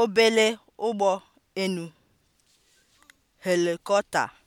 obele ụgbọ enu helikọta.